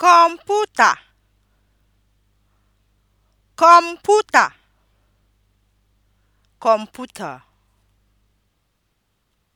kọmputa kọmputa kọmputa